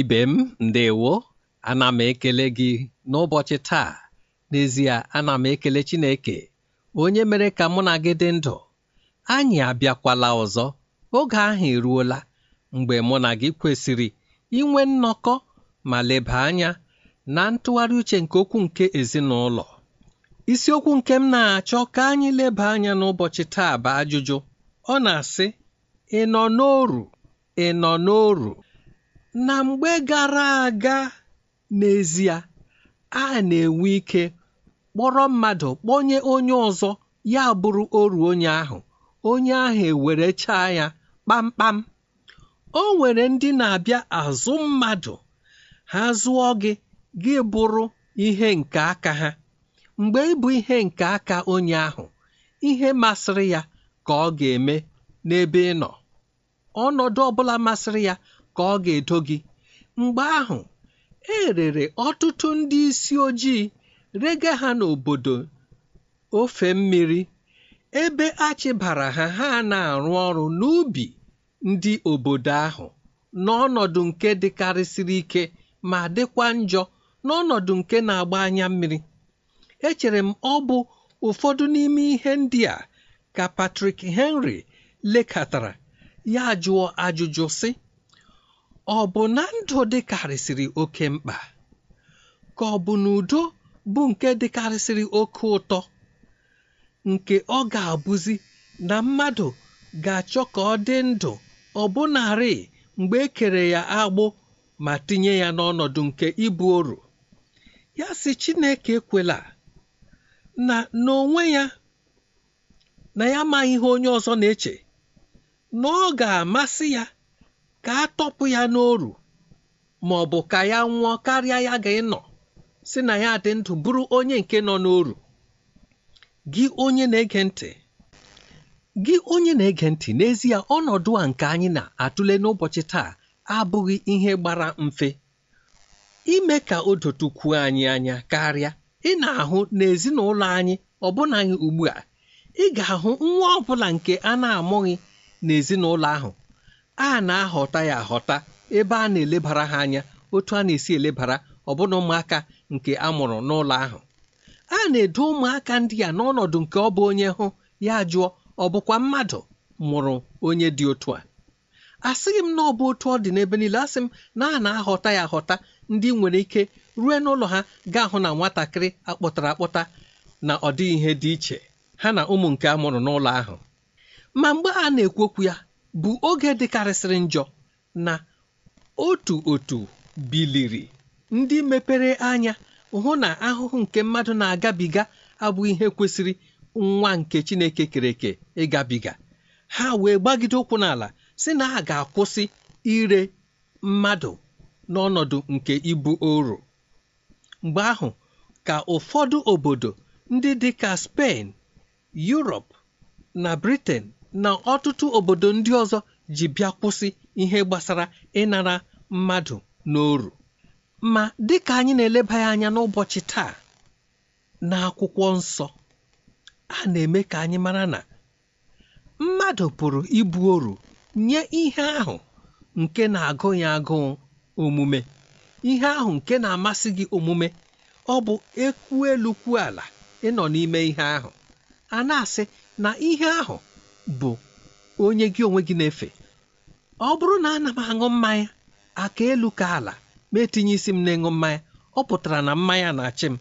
ibe m ndewo ana m ekele gị n'ụbọchị taa n'ezie ana m ekele Chineke onye mere ka mụ na gị dị ndụ anyị abịakwala ọzọ oge ahụ eruola mgbe mụ na gị kwesịrị inwe nnọkọ ma leba anya na ntụgharị uche nke okwu nke ezinụlọ isiokwu nke m na-achọ ka anyị leba anya n'ụbọchị taa bụ ajụjụ ọ na-asị ị nọ n'oru ị nọ n'oru na mgbe gara aga n'ezie a na-enwe ike kpọrọ mmadụ kpọnye onye ọzọ ya bụrụ oru onye ahụ onye ahụ ewerechaa ya kpamkpam o nwere ndị na-abịa azụ mmadụ ha zụọ gị gị bụrụ ihe nke aka ha mgbe ị bụ ihe nke aka onye ahụ ihe masịrị ya ka ọ ga-eme n'ebe ị nọ ọnọdụ ọbụla masịrị ya ka ọ ga-edo gị mgbe ahụ e rere ọtụtụ ndị isi ojii rega ha n'obodo ofe mmiri ebe achịbara ha ha na-arụ ọrụ n'ubi ndị obodo ahụ n'ọnọdụ nke dịkarịsịrị ike ma dịkwa njọ n'ọnọdụ nke na-agba anya mmiri echere m ọ bụ ụfọdụ n'ime ihe ndị a ka Patrick Henry lekatara ya jụọ ajụjụ sị ọ bụ na ndụ dịkarịsịrị oke mkpa ka ọ bụ na udo bụ nke dịkarịsịrị oke ụtọ nke ọ ga-abụzi na mmadụ ga-achọ ka ọ dị ndụ bụnarị mgbe e kere ya agbụ ma tinye ya n'ọnọdụ nke ibu oru ya si Chineke kwela na n'onwe ya na ya amaghị ihe onye ọzọ na-eche na ọ ga-amasị ya ka a tọpụ ya n'oru ma ọ bụ ka ya nwụọ karịa ya ga-ịnọ si na ya dị ndụ bụrụ onye nke nọ n'oru gị onye na-ege ntị gị onye na-ege ntị n'ezie ọnọdụ a nke anyị na-atụle n'ụbọchị taa abụghị ihe gbara mfe ime ka o dotukwuo anyị anya karịa ị na-ahụ n'ezinụlọ anyị ọbụna anyị ugbu a ị ga-ahụ nwa ọ bụla nke a na-amụghị n'ezinụlọ ahụ a na-ahọta ya ahọta ebe a na-elebara ha anya otu a na-esi elebara ọbụna ụmụaka nke a mụrụ n'ụlọ ahụ a na-edo ụmụaka ndị a n'ọnọdụ nke ọ bụ onye hụ ya jụọ ọ bụkwa mmadụ mụrụ onye dị otu a asịghị m na ọ bụ otu ọ dị n'ebe niile asị m na a na-ahọta ya ahọta ndị nwere ike rue n'ụlọ ha gaa hụ na nwatakịrị akpọtara akpọta na ọ dịghị ihe dị iche ha na ụmụ nke a mụrụ n'ụlọ ahụ ma mgbe a na-ekwu okwu ya bụ oge dịkarịsịrị njọ na otu otu biliri ndị mepere anya hụ na ahụhụ nke mmadụ na-agabiga abụghị ihe kwesịrị nwa nke Chineke kere ịgabiga ha wee gbagide ụkwụ n'ala si na ha ga-akwụsị ire mmadụ n'ọnọdụ nke ibu oro mgbe ahụ ka ụfọdụ obodo ndị dị ka spen na Briten. na ọtụtụ obodo ndị ọzọ ji bịa kwụsị ihe gbasara ịnara mmadụ n'oru ma dịka anyị na-eleba ya anya n'ụbọchị taa n'akwụkwọ nsọ a na-eme ka anyị mara na mmadụ pụrụ ibu oru nye ihe ahụ nke na-agụ ya agụụ omume ihe ahụ nke na-amasị gị omume ọ bụ ekwu elu kwuo ala ịnọ n'ime ihe ahụ a na-asị na ihe ahụ bụ onye gị onwe gị na-efe ọ bụrụ na ana m aṅụ mmanya aka elu ka ala ma etinye isi m na-ịṅụ mmanya ọ pụtara na mmanya na-achị m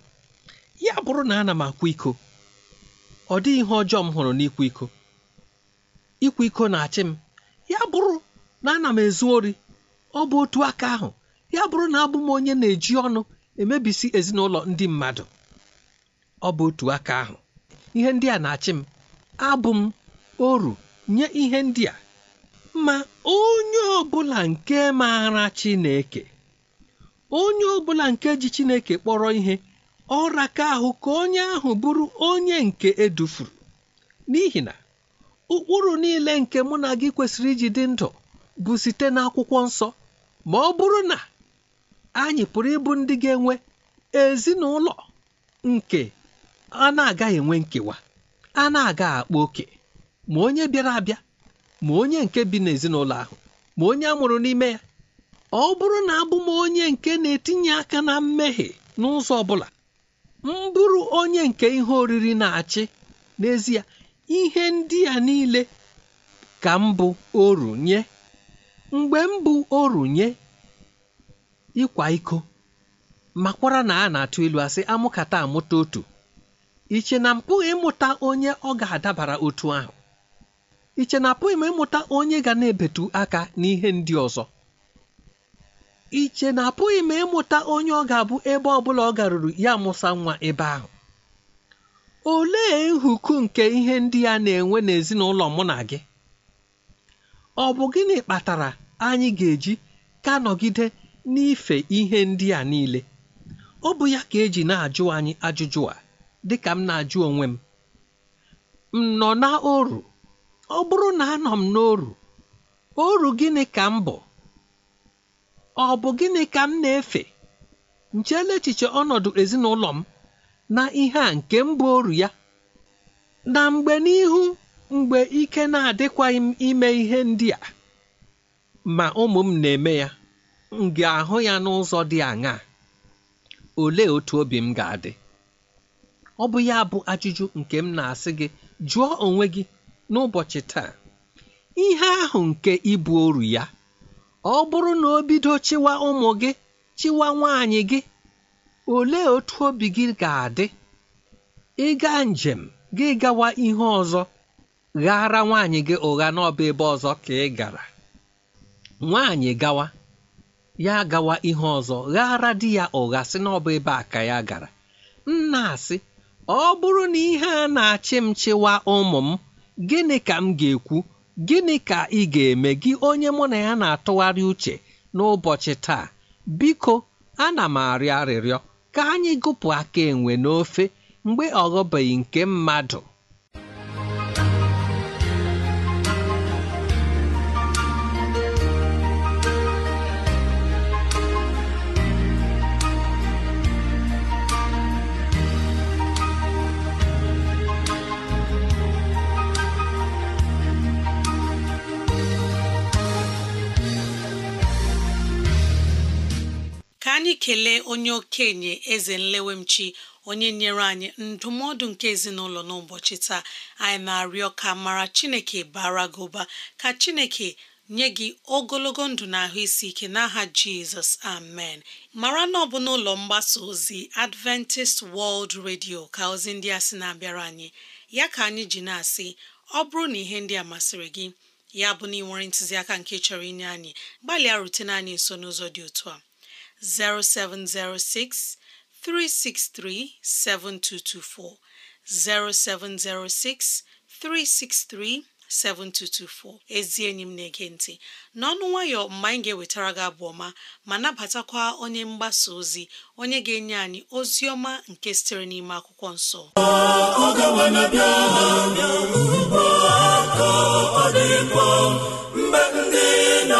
ya bụrụ na ana m akwa iko ọ dịghị ihe ọjọọ m hụrụ n'ịkwa iko ịkwa iko na-achị m ya bụrụ na ana m ezu ori ọ bụ otu aka ahụ ya bụrụ na abụ m onye na-eji ọnụ emebisi ezinụlọ ndị mmadụ ọ bụ otu aka ahụ ihe ndị a na-achị m abụ m oru nye ihe ndị a ma onye ọbụla nke maara Chineke onye ọbụla nke ji Chineke kpọrọ ihe ka ahụ ka onye ahụ bụrụ onye nke edufuru n'ihi na ụkpụrụ niile nke mụ na gị kwesịrị iji dị ndụ bụ site n'akwụkwọ nsọ ma ọ bụrụ na anyị pụrụ ịbụ ndị ga-enwe ezinụlọ nke a na-agaghị enwe nkewa a na-aga akpa oke ma onye bịara abịa ma onye nke bi n'ezinụlọ ahụ ma onye a mụrụ n'ime ya ọ bụrụ na abụ m onye nke na-etinye aka na mmehie n'ụzọ ọ bụla m bụrụ onye nke ihe oriri na-achị n'ezie ihe ndị a niile ka mbụ bụ oru nye mgbe mbụ bụ oru nye ịkwa iko makwara na a na-atụ ilu asị amụkata amụta otu iche na pụghị ịmụta onye ọ ga-adabara otu ahụ iche na apụghị m ịmụta onye ga na-ebetu aka n'ihe ndị ọzọ iche na apụghị m ịmụta onye ọ ga-abụ ebe ọ bụla ọ garuru ya mụsa nwa ebe ahụ olee nhuku nke ihe ndị a na-enwe n'ezinụlọ mụ na gị ọ bụ gịnị kpatara anyị ga-eji ka nọgide n'ife ihe ndị a niile ọ bụ ya ka eji na-ajụ anyị ajụjụ a dịka m na-ajụ onwe m m nọ na oru ọ bụrụ na anọ m n'oru oru gịnị ka m bụ ọ bụ gịnị ka m na-efe nchela echiche ọnọdụ ezinụlọ m na ihe a nke mbụ oru ya na mgbe n'ihu mgbe ike na-adịkwaghị m ime ihe ndị a ma ụmụ m na-eme ya m ga-ahụ ya n'ụzọ dị aṅaa olee otu obi m ga-adị ọ bụ ya bụ ajụjụ nke m na-asị gị jụọ onwe gị n'ụbọchị taa ihe ahụ nke ịbụ oru ya ọ bụrụ na o bido chịwa ụmụ gị chịwa nwaanyị gị olee otu obi gị ga-adị ịga njem gị gawa ihe ọzọ ghara nwaanyị gị ụgha n'ọba ebe ọzọ ka ị gara nwaanyị gawa ya gawa ihe ọzọ ghara di ya ụgha sị n'ọba ebe a ka ya gara nna asị ọ bụrụ na ihe a na-achị m chịwa ụmụ m gịnị ka m ga-ekwu gịnị ka ị ga-eme gị onye mụ na ya na-atụgharị uche n'ụbọchị taa biko ana m arịọ arịrịọ ka anyị gụpụ aka enwe n'ofe mgbe ọ ghọbeghị nke mmadụ anyị kelee onye okenye eze nlewemchi onye nyere anyị ndụmọdụ nke ezinụlọ n'ụbọchị taa anyị na-arịọ ka mara chineke bara gị ụba ka chineke nye gị ogologo ndụ na ahụ isi ike n'aha jizọs amen mara na ọ bụ n'ụlọ mgbasa ozi adventist world radio ka ozi ndị a sị na-abịara anyị ya ka anyị ji na-asị ọ bụrụ na ihe ndị a masịrị gị ya bụ na ị nwere ntụziaka nke chọrọ inye anyị gbalịa rutene anyị nso n'ụzọ dị otu a 0706 363 7224 0706 363 7224 ezi enyi m na-ege ntị n'ọnụ nwayọ mgbe anyị ga-ewetara gị abụ ọma ma nabatakwa onye mgbasa ozi onye ga-enye anyị ozi ọma nke sitere n'ime akwụkwọ nso. ọ dị mkpa mgbe ndị na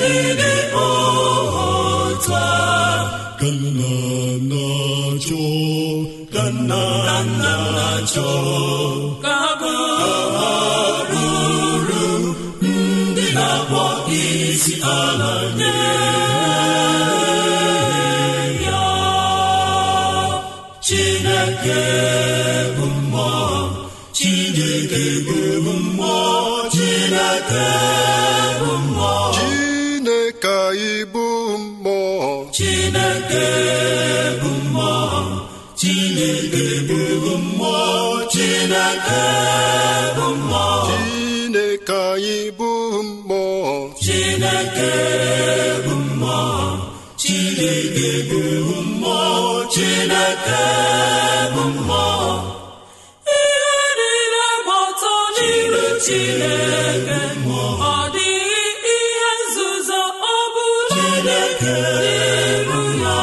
ndị dị otu chineke bụ mmụọ ihe niile gba ọtọ n'iru chineke ọ dịghị ihe nzuzo ọ bụla n'iru ya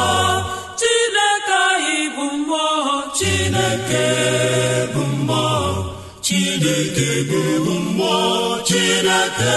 chineke anyị bụ mmụọ chineke bụ mmụọ chineke bụ mmụọ chineke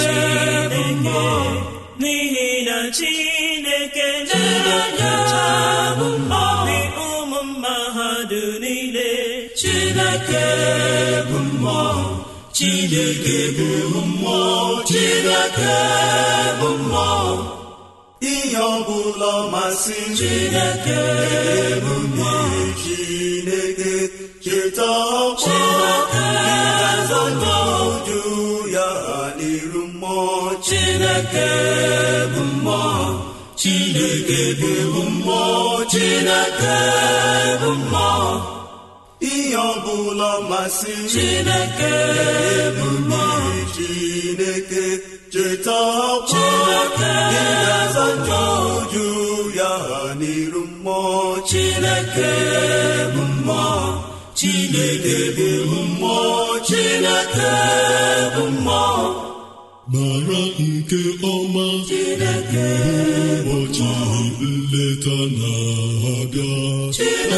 chineke na ụmụ mmadụ niile chineke bụ mmụọ chineke bụ mmụọ chineke bụ mmụọ ihe masị chineke bụ mmụọ chineke cheta ọkpọ chineke bụ mmụọ chineke bụ mmụọ chineke bụ mmụọ chineke bụ mmụọ ihe ọbụla masị chineke bụ mmụọ chineke cheta ọkwa gị na-aza njọ ya n'iru mmụọ chineke bụ mmụọ chineke bụ mmụọ chineke bụ mmụọ mara nke ọma ụbọchị nleta na-abịa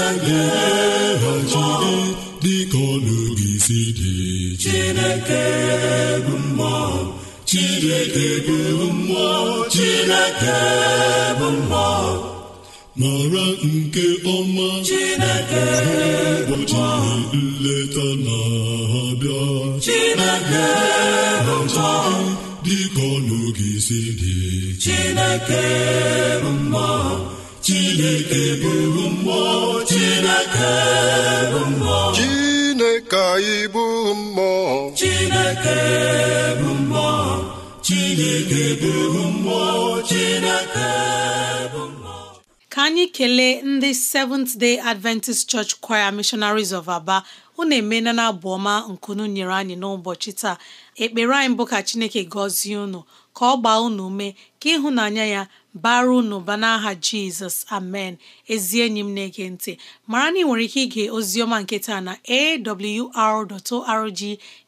eeghachide dịka ọnụgị si dị Chineke bụ mmụọ Chineke bụ mmụọ Chineke bụ mmụọ mara nke ọma Chineke ụbọchị nleta na-abịa Chineke bụ mmụọ dịka ọnụ gị si dị Chineke bụ mmụọ Chineke bụrụ mmụọ Chineke bụ mmụọ Chineke anyị bụ mmụọ Chineke bụ mmụọ Chineke bụrụ mmụọ Chineke bụ mmụọ ka anyị kelee ndị Seventh Day Adventist Church Choir Missionaries of Aba unu emeela na abụ ọma nkunu nyere anyị n'ụbọchị taa ekpere anyị bụ ka chineke gọzie unu ka ọ gbaa unu ume ka ịhụnanya ya bara unu ba n'aha jizọs amen ezi enyi m na-ege ntị mara na ị nwere ike ige oziọma nke taa na awr.org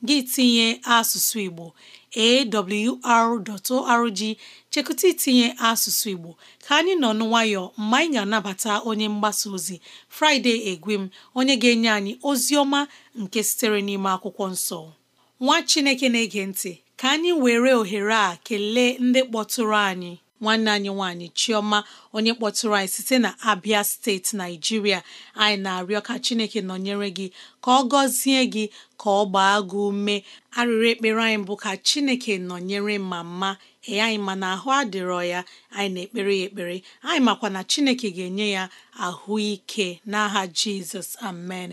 gị tinye asụsụ igbo awr.org chekụta itinye asụsụ igbo ka anyị nọ n'nwayọ mgbe anyị ga-anabata onye mgbasa ozi fraịde egwem onye ga-enye anyị ozi ọma nke sitere n'ime akwụkwọ nsọ nwa chineke na-ege ntị ka anyị were ohere a kelee ndị kpọtụrụ anyị nwanne anyị nwanyị, chioma onye kpọtụrụ anyị site na abia steeti naijiria anyị na-arịọ ka chineke nọnyere gị ka ọ gọzie gị ka ọ gbaa gị ume arịrị ekpere anyị bụ ka chineke nọnyere ma ee anyị ma na ahụ adịrọ ya anyị na-ekpere ya ekpere anyị makwa na chineke ga-enye ya ahụ ike n'aha jizọs amen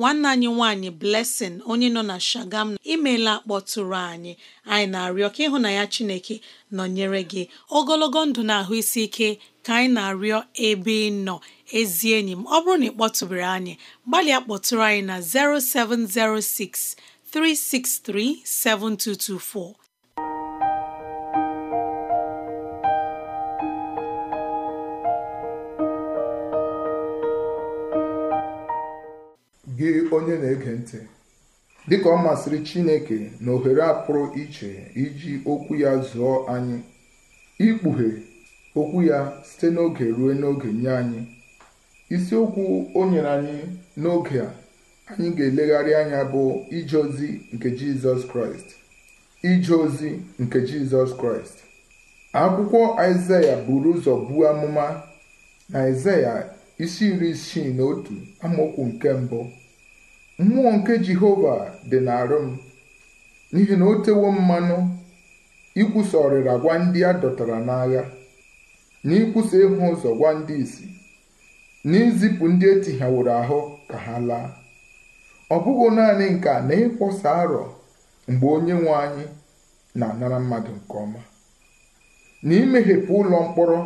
nwanne anyị nwanyị Blessing onye nọ na Shagam imela kpọtụrụ anyị anyị na-arịọ ka ịhụ na ya Chineke nọnyere gị ogologo ndụ na ahụ isi ike ka anyị na-arịọ ebe ị nọ ezi enyi m ọ bụrụ na ị kpọtụbere anyị gbalịa kpọtụrụ anyị na 0706 363 7224 gị onye na-ege ntị dịka ọ masịrị Chineke na ohere a iche iji okwu ya zụọ anyị ikpughe okwu ya site n'oge ruo n'oge nye anyị isiokwu o nyere anyị n'oge a anyị ga-elegharị anya bụ ije ozi nke Jizọs Kraịst ije ozi nke Jizọs Kraịst akwụkwọ Aịzaya buru ụzọ buo amụma na Aịzaya isi iri isii na otu amaokwu nke mbụ mmụọ nke jehova dị n'arụ m n'ihi na o tewo mmanụ ikwusa ọrịra gwa ndị a dọtara n'agha na ikwusa ịhụ ụzọ gwa ndị isi na izipụ ndị etighaworo ahụ ka ha laa ọ bụghị naanị nke a na ịkwọsa arọ mgbe onye nwe anyị na-anara mmadụ nke ọma na imeghepụ ụlọ mkpọrọ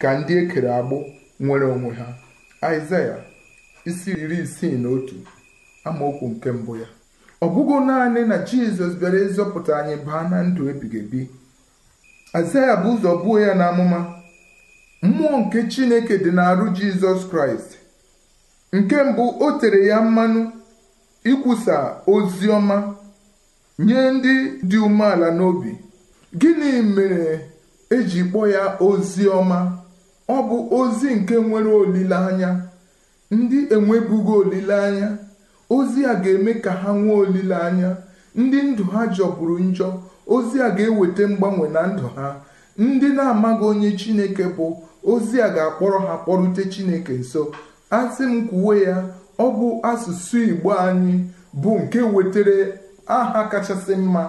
ka ndị ekere agbụ nwere onwe ha Aịzaya isi iri isii na otu amaokwu nke mbụ ya ọ bụghị naanị na jizọs bịara ịzọpụta anyị baa na ndụ ebighị ebi azaya bụ ụzọ buo ya amụma mmụọ nke chineke dị n'arụ jizọs kraịst nke mbụ o tere ya mmanụ ikwusa ozi ọma nye ndị dị umeala n'obi gịnị mere eji kpọọ ya ozi ọma ọ bụ ozi nke nwere olileanya ndị enwebughị olileanya ozi a ga-eme ka ha nwee olileanya ndị ndụ ha jọgburu njọ ozi a ga-eweta mgbanwe na ndụ ha ndị na-amaghị onye chineke bụ ozi a ga-akpọrọ ha kpọrute chineke nso asị m kwuwe ya ọ bụ asụsụ igbo anyị bụ nke wetara aha kachasị mma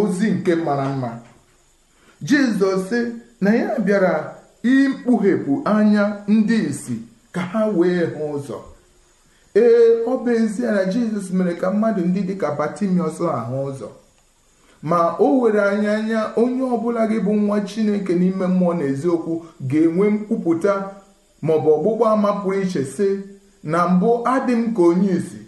ozi nke mara mma jizọs sị na ya bịara ikpughepụ anya ndị isi ka ha wee hụ ụzọ ee ọ bụ ezie na jizọs mere ka mmadụ ndị dịka batimiọs ahụ ụzọ ma o were anya anya onye ọbụla gị bụ nwa chineke n'ime mmụọ na eziokwu ga-enwe mkwupụta bụ ọgbụgba ama pụrụ iche sị na mbụ adị m ka onye isi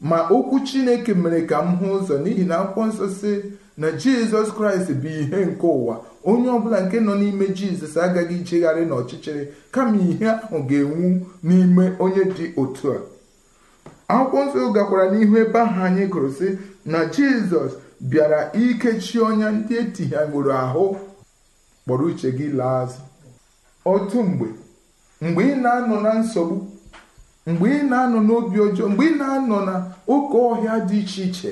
ma okwu chineke mere ka m hụ ụzọ n'ihi na akwụkwọ nsọ sị na jizọs kraịst bụ ihe nke ụwa onye ọbụla nke nọ n'ime jizọs agaghị ijegharị n'ọchịchịrị kama ihe ahụ ga-enwu n'ime onye dị otu a akwụkwọ nsọ gakwara n'ihu ebe ahụ anyị gụrụ sị na jizọs bịara ikechi ọnya ndị etighagoro ahụ kpọrọ uche gị laa azụ otu mgbe mgbe ị na-anọ na nsogbu mgbe ị na-anọ n'obi ọjọọ mgbe ị na-anọ na oke ọhịa dị iche iche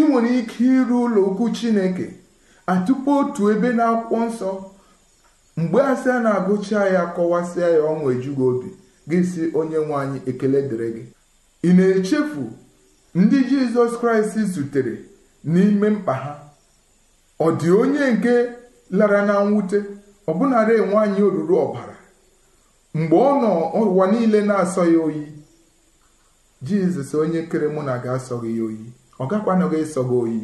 ị nwere ike iru ụlọ okwu chineke atụpụ otu ebe na akwụkwọ nsọ mgbe asị a na-agụcha ya kọwasịa ya ọnwa ejughị obi gị si onye nwe anyị ekele dịrị gị ị na-echefu ndị Jizọs Kraịst zutere n'ime mkpa ha ọ dị onye nke lara na mwute ọbụnara enwe anyị oruru ọbara mgbe ọ nọ ụwa niile na-asọ ya oyi Jizọs onye kere mụ na ga-asọghị ya oyi ọ gakwanụghị ịsọ gị oyi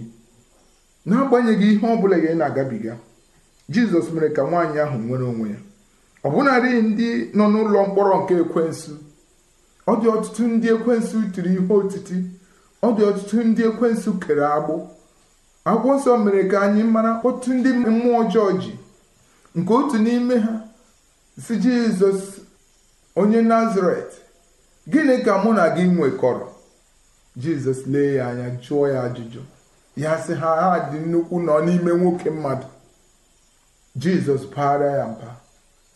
n'agbanyeghị ihe ọ bụla ị na-agabiga Jizọs mere ka nwaanyị ahụ nwere onwe ya ọbụnarị ndị nọ n'ụlọ mkpọrọ nke ekwensu ọ dị ọtụtụ ndị ekwensụ tiri ihe otiti ọ dị ọtụtụ ndị ekwensu kere agbụ akwụkwọ nsọ mere ka anyị mara otu ndị mmụọ ọjọọ ji nke otu n'ime ha si jizọs onye nazaret gịnị ka mụ na gị nwekọrọ jizọs lee ya anya jụọ ya ajụjụ ya sị ha ha dị nnukwu nọ n'ime nwoke mmadụ jizọs baara ya mba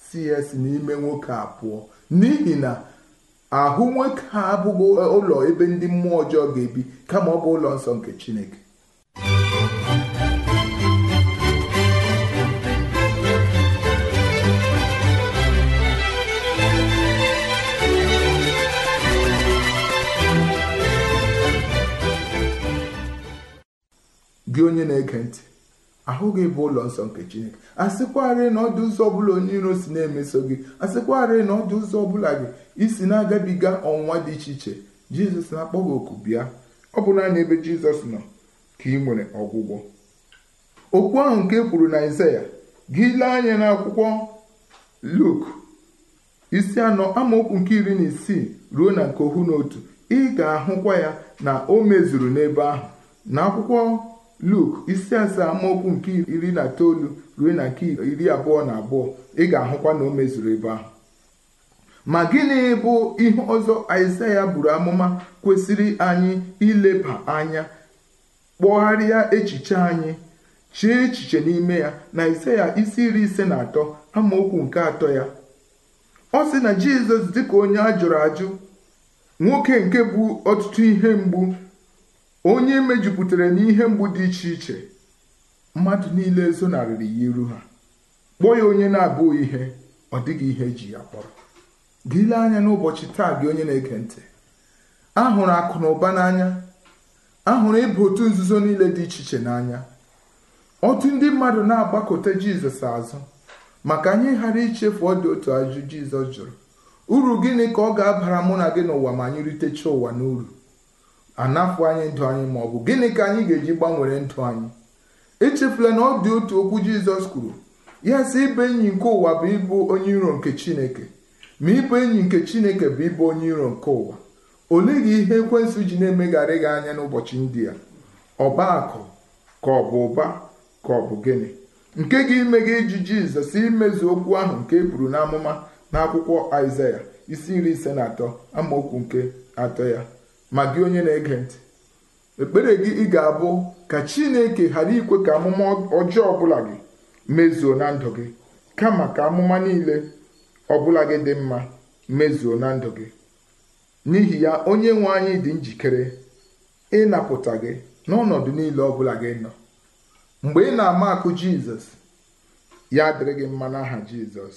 si ya si n'ime nwoke a pụọ n'ihi na ahụ nwoke abụghị ụlọ ebe ndị mmụọ ọjọọ ga-ebi kama ọ bụ ụlọ nsọ nke chineke gị onye na-ege ntị ahụghị bụ ụlọ nsọ nke chineke asịkwarị na ọdụ ụzọ ọbụla onye iro si na-emeso gị asịkwarị na ọdụ ụzọ ọbụla gị isi na-agabiga ọnwụnwa dị iche iche jizọs na-akpọ gị oku bịa ọ bụ naanị ebe jizọs nọ ka ị nwere ọgwụgwọ okwu ahụ nke e kwuru na izaya gị lee anya n'akwụkwọ Luk isi anọ amaokwu nke iri na isii ruo na nke ohu na otu ị ga-ahụkwa ya na o mezuru n'ebe ahụ n'akwụkwọ Luk isi asaa amaokwu nke iri na itoolu ruo na nke iri abụọ na abụọ ị ga-ahụkwa na o mezuru ebe ahụ ma gịnị bụ ihe ọzọ Aịsaịa buru amụma kwesịrị anyị ileba anya kpọgharịa echiche anyị chee echiche n'ime ya na Aịsaịa isi iri ise na atọ amaokwu nke atọ ya ọ sị na Jizọs dị ka onye a jụrụ ajụ nwoke nke bụ ọtụtụ ihe mgbu onye mejupụtara n'ihe mgbu dị iche iche mmadụ niile zonarịrị ya iru ha kpọọ ya onye na-abụghị ihe ọ dịghị ihe eji ya kpọrọ gịle anya n'ụbọchị taa gị onye na-ege ntị ahụrụ akụ na ụba n'anya ahụrụ ịbụ otu nzuzo niile dị iche iche n'anya otu ndị mmadụ na-agbakọta jizọs azụ maka anyị ghara ichefu ọ dị otu ajụ jizọs jụrụ uru gịnị ka ọ ga-abara mụ na gị n'ụwa ma anyị ritecha ụwa n'uru anafu anyị ndụ anyị ma ọ bụ gịnị ka anyị ga-eji gbanwere ndụ anyị echefula na ọ dị otu okwu jizọs kwuru ya si ibe enyi nke ụwa bụ ịbụ onye iro nke chineke ma ịbụ enyi nke chineke bụ ịbụ onye iro nke ụwa olee gị ihe ekwensụ ji na-emegharị gị anya n'ụbọchị ndị a ọba akụ ka ọ bụ ụba ka ọ bụ gịnị nke gị ime gị iji jizọs imezu okwu ahụ nke e n'amụma n'akwụkwọ aịzaya isi iri ise na atọ amaokwu nke atọ ya ma gị onye na-ege ntị ekpere gị ị ga-abụ ka chineke ghara ikwe ka amụma ọjọọ ọbụla gị mezuo na ndụ gị kama ka amụma niile ọbụla gị dị mma mezuo na ndụ gị n'ihi ya onye nwe anyị dị njikere ịnapụta gị n'ọnọdụ niile ọbụla gị nọ mgbe ị na-ama akụ jizọs ya dịrị gị mma n'aha jizọs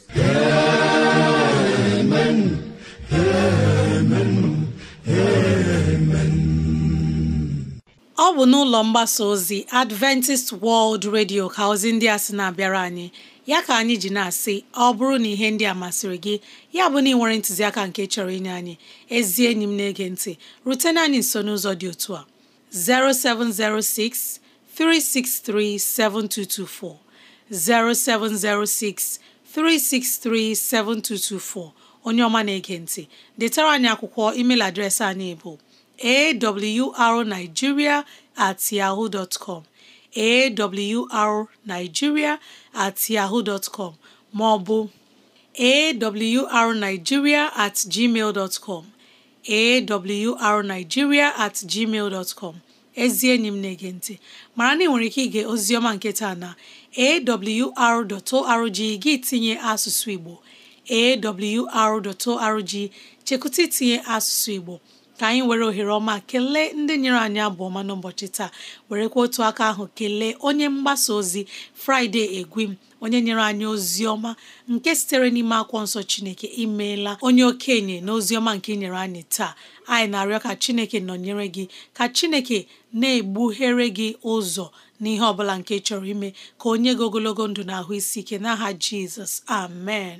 ọ bụ n'ụlọ mgbasa ozi adventist world radio ka ozi ndị a sị na-abịara anyị ya ka anyị ji na-asị ọ bụrụ na ihe ndị a masịrị gị ya bụ na ị nwere ntụziaka nke chọrọ inye anyị ezi enyi m na-ege ntị rutena anyị nso n'ụzọ dị otu a 0706 363 7224 0706 363 7224 onye ọma na-ege ntị detara anyị akwụkwọ email adreesị anyị bụ awrnigeria at yaho awrnigeria at ọ bụ com maọbụ at com at gmail ezi enyi m na-ege ntị mara na ị nwere ike ige ozioma nke taa na awr.org gị tinye asụsụ Igbo awr.org chekụta itinye asụsụ Igbo ka anyị were ohere ọma kelee ndị nyere anyị abụ ọma n'ụbọchị taa werekwa otu aka ahụ kelee onye mgbasa ozi Friday Egwim onye nyere anyị ozi ọma nke sitere n'ime akwọ nsọ Chineke imeela onye okenye na ozi ọma nke nyere anyị taa anyị na-arịọ ka Chineke nọnyere gị ka Chineke na-egbughere gị ụzọ n'ihe ọ bụla nke chọrọ ime ka onye gị ogologo ndụ na ahụ isi ike n'aha Jizọs amen